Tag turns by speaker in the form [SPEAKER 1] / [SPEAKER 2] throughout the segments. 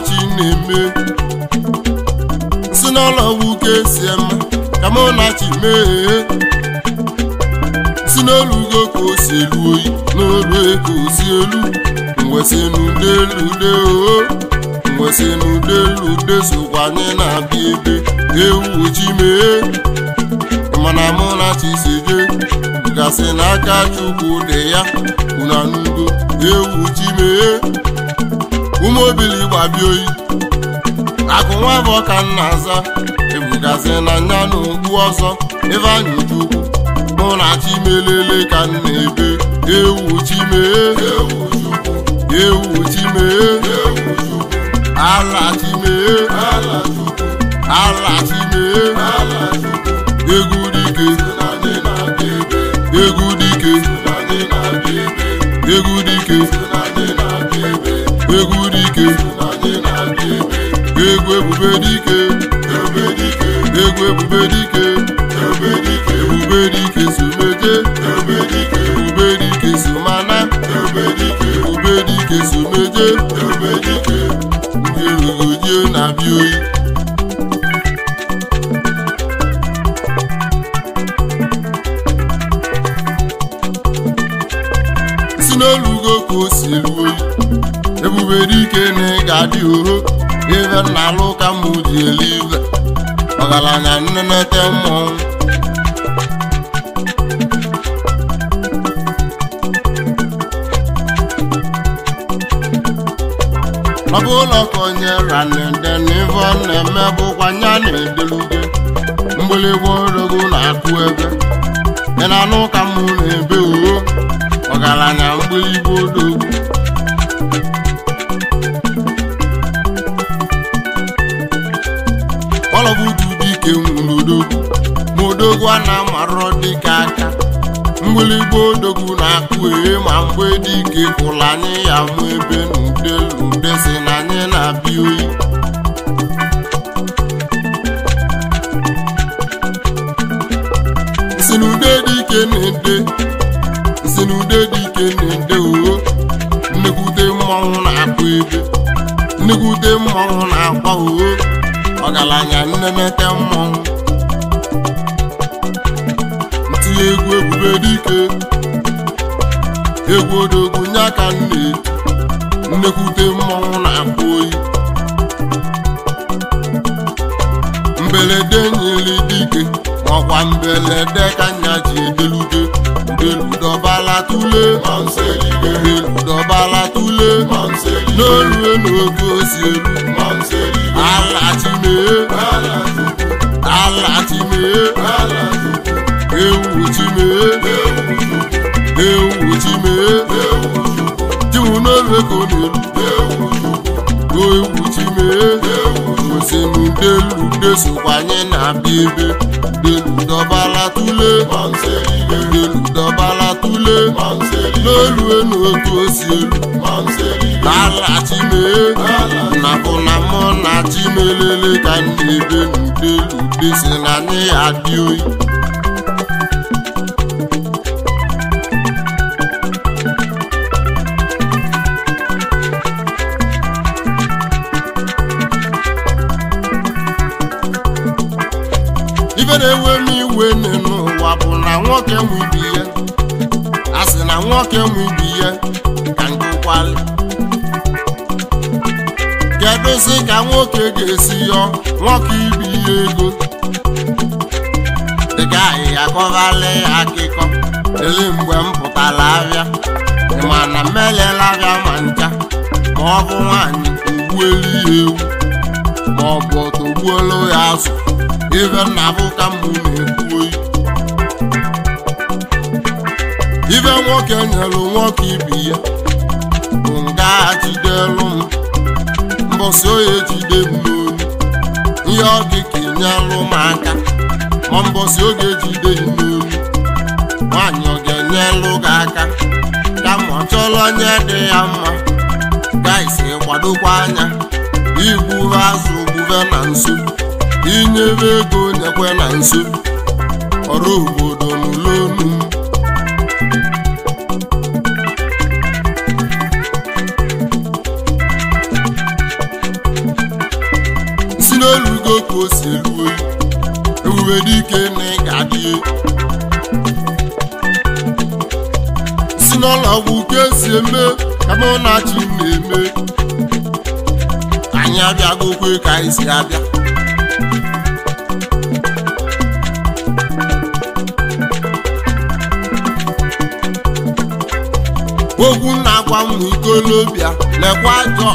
[SPEAKER 1] ọdachi na-eme si n'ụlọ wuke si ema ka m chi mee si n'elu ugo ka o si elu oyi n'olu ego si elu mwesinudeude o oh, mwesinudeude sokwa anyị na-abịa ebe ewu ji mee mana m chi si jee gasị n'aka Chukwu dị ya unu anụgo ewu ji mee ụmụ obili gbabia oyi akụ nwa bụ ọka nna aza ebugazi na nya na okpu ọzọ ebe anyị ujuku mụ na chimelele ka m na-ebe ewu chime ewu chime ala chime ala chime egwu dike egwu dike egwu dike egwu dike egwu ebube dike egwu ebube dike ebube dike someje ebube dike somana ebube dike someje dị uhu ive na alụ ka eli ive ọgaranya nnenete mmọnwụ ọ bụ ụlọ ka onye ranede na ive ọ na-eme bụkwa na-edeluge mgbịlịgwa orogo na-akụ ebe ị na-anụ ka mụ na-ebe uhu ọgaranya mgbịlịgwa mgbịlịgba odogwu na-akpụ ihe ma mgbe dị ike kwụla anyị ya mụ ebe n'ude ude si na anyị na-abịa oyi si n'ude dị ike na-ede si dị ike na-ede oo nnekwute mmọnwụ na-akpụ ebe nnekwute mmanwụ na-akwa oo ọgaranya nnemete mmọnwụ na egwu ebube dike egwu odogwu nye aka nne nnekwute mmọnwụ na-akpụ oyi mberede nyere dike ọkwa mberede ka nya ji edelute udobala tule n'olu tule n'olue n'oge osi elu ala mee ala chimee ewu ji mee ewu ji mee jiwu n'elu ego n'elu o ewu ji mee osenu delu desokwa anyị na-abịa ebe delu dọbala tule delu dọbala tule n'elu enu otu osi elu ala chimee na bụ na mụ na chimelele ka na ebe n'udelu desi na anyị adị oyi nwoke nwe a sị na nwoke nwe ibi ya ka ngụkwalị kedụzi ka nwoke ga-esi yọ nwoke ibi ya ego dịka ahịhịa ya akịkọ ele mgbe m pụtara abịa mana m elela abịa ma ncha ma ọ bụ nwaanyị ogbuelu ya ewu ma ọ bụ ọtọ ya azụ ibe nna bụ na-ekwu ibe nwoke nyelu nwoke ibi ya bụ nga jidelu m mbọsị oye jide m ihe ọ dị ka enyelụ m aka ma mbọsị oge jide m nwaanyị ọ ga-enyelụ enye gị aka ma ọ chọọla onye dị ya mma gaisi kwadokwa anya igburu azụ gbube na nso inyere ego nyekwe na nso ọrụ obodo nụrụ ego ka o si elu oyi ewuwe dike na ị ga-adị si n'ụlọọgwụ ka e eme ka ọ na chi na-eme anyị abịagokwe ka anyị si abịa ogwu na-agwa ụmụ ikolobịa lekwa ajọ ka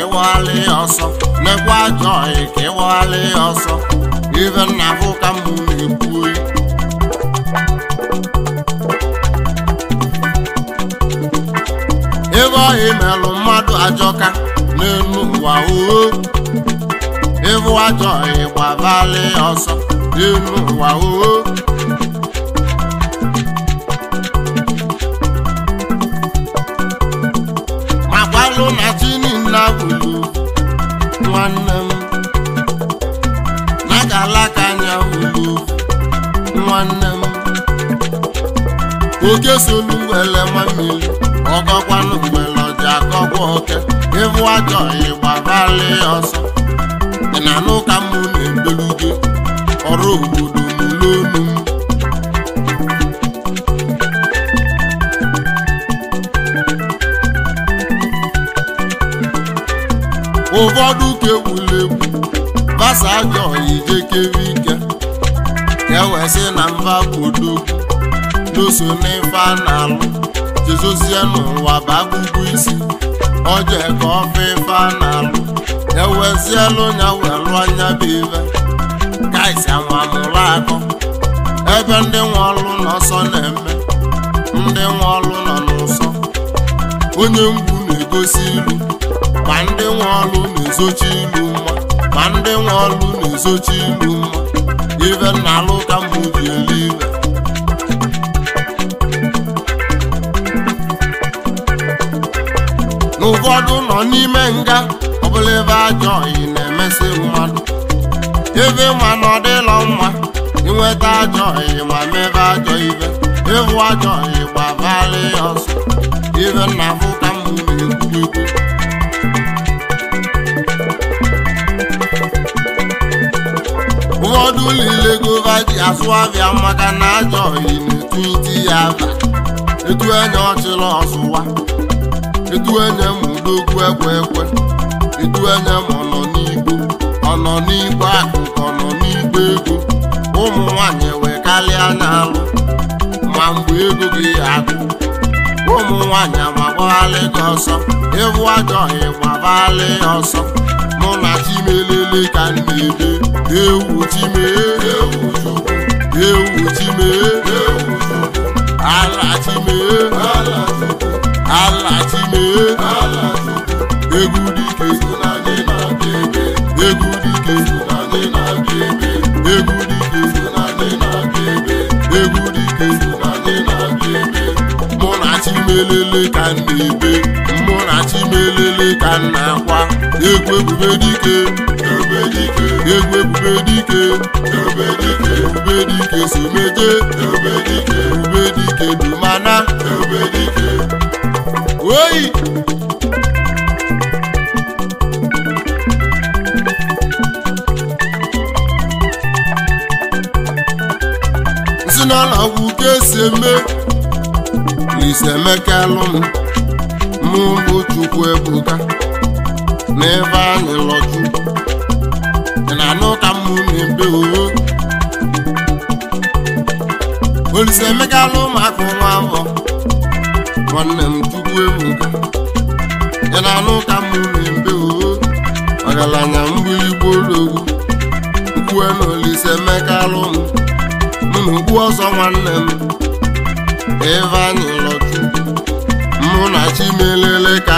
[SPEAKER 1] ịwaghalị ya ọsọ lekwa ajọ ka ịwaghalị ya ọsọ ife nna bụ ka mụ na-ekwu ebe ọyị melụ mmadụ ajọka n'elu ụwa oo ịbụ ajọhị ọyị gbabalị ya ọsọ n'elu ụwa oo esolu ngwele nwammiri ọkọkwanụ ngwele ọja akọkwa oke ịvụ ajọ ịgbarali ọsọ dị na n'ụka mụ na-ebelu ọrụ obodo n'ụlọonu m ụfọdụ ka egwuregwu basa ajọ ijekere ike ka e na mba bụ so n'ife a na-alụ jezozie n'ụwa bagụgụ isi oje ka ọfa ife a na-alụ ewezielu ya wee anya bụ ife kaisi amamụrụ akọ ebe ndị nwe ọlụ n'ọsọ na-eme ndị nwe ọlụ nọ n'ụsọ onye mgbu na-egosi ilu ma ndị nwe ọlụ na-ezochi ilu mma ma ndị nwe ọlụ na-ezochi ilu mma ife na-alụ ka mgbe ụfọdụ nọ n'ime nga ọbụla ebe ajọ oyi na-emesị mmadụ ebe ma na ọ dịlọ mma inweta ajọ oyi ma mebe ajọ ibe ịhụ ajọ oyi gbabara ya ọsọ ibe na m ka m na-ekwukwu ụfọdụ niile gova ji asụ abịa maka na ajọ oyi na-etu iti ya aba etu enye ọchịla ọsụwa edu anya m n'okwu ekwe ekwe edu anya m ọnọ n'igbo ọnọ n'igbo akụ ọnọ n'igbo ego ụmụ nwanyị wee n'alụ ma mgbe ego gị akụ ụmụ nwanyị amagbalị gị ọsọ ewu ajọghị gbagbalị ọsọ mụ na chimelele ka m na-ebe ewu chime ewu chukwu ewu chime ewu chukwu ala chime ala alachile egwu dike egwu dike egwu dike egwu dike mụ na chimelele ka na-ebe mụ na chimelele ka m na-akwa egwu ebube dike egwu ube dike ebube dike si meje ebube dike bụ oyi sinala gwụ ka esi eme eme ka Emekalụ m mụ bụ Chukwu Ebuka n'ebe anyị lọju na-anụ ka mụ na-ebe owo Olise Emekalụ ụmụaka ụmụ mbọ nwanne m ebuga na-alụ ka mụmbe ọgaranya na m na ọzọ nwanne m Ivanilọchukwu mụ na Chimelele ka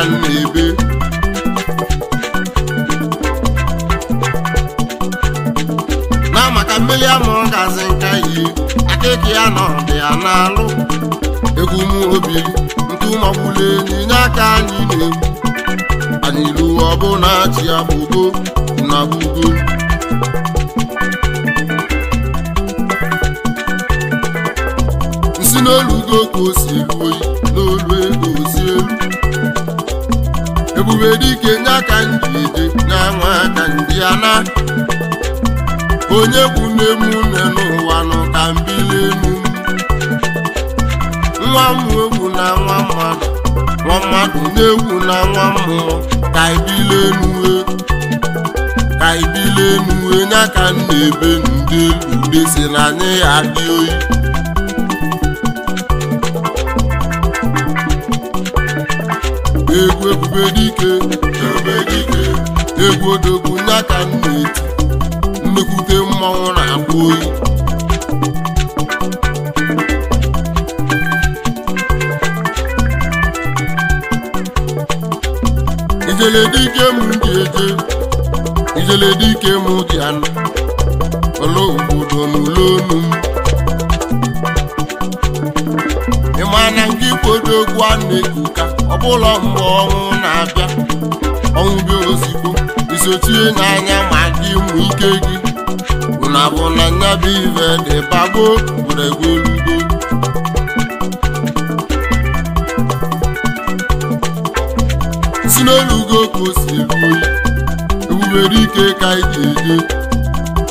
[SPEAKER 1] ọgụ na-achị agbụgo na gbugo nsi n'olugo ka o si eru oyi n'olu ego osi elu ebube dike nye aka ndị ije nye nwa aka ndị ana onye bụ nne m nne n'ụwa nọ ka mbili enu nwa m egwu na nwa mmadụ nwa mmadụ na-ewu na nwa mmụọ ka ibile enue ka ibile enue nya ka m ebe ndị ude si na anyị adị oyi egwu ebube dike egwu odogwu nya ka m na-eti nnekwute mmanwụ na-akpụ oyi ijele dike m ji eje ijele ike m ji anụ ọla obodo n'ụlọ onu m ịma na nke ikpodo egwu a na ọ bụla mgbe ọnwụ na-abịa ọnwụ bịa ozigbo isochie n'anya ma dị ụmụ ike gị ụnabụ na nya bụ ive dị bagbo gwuregwu elugo n'elugo ka o si eru ike ka anyị ji eje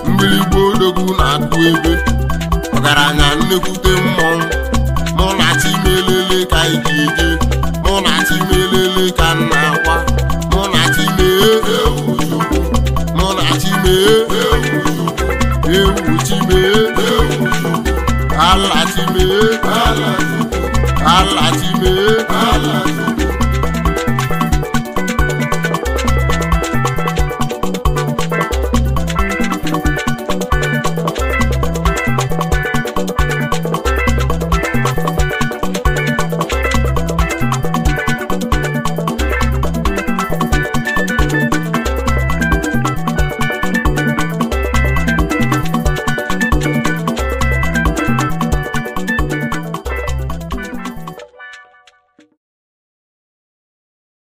[SPEAKER 1] mgbirigbo odogwu na-akụ ebe ọgaranya nnekwute mmọnwụ mụ na chimelele ka anyị ji eje mụ na melele ka nna akwa mụ na chimee mụ na chimee ewu chimee ala chimee ala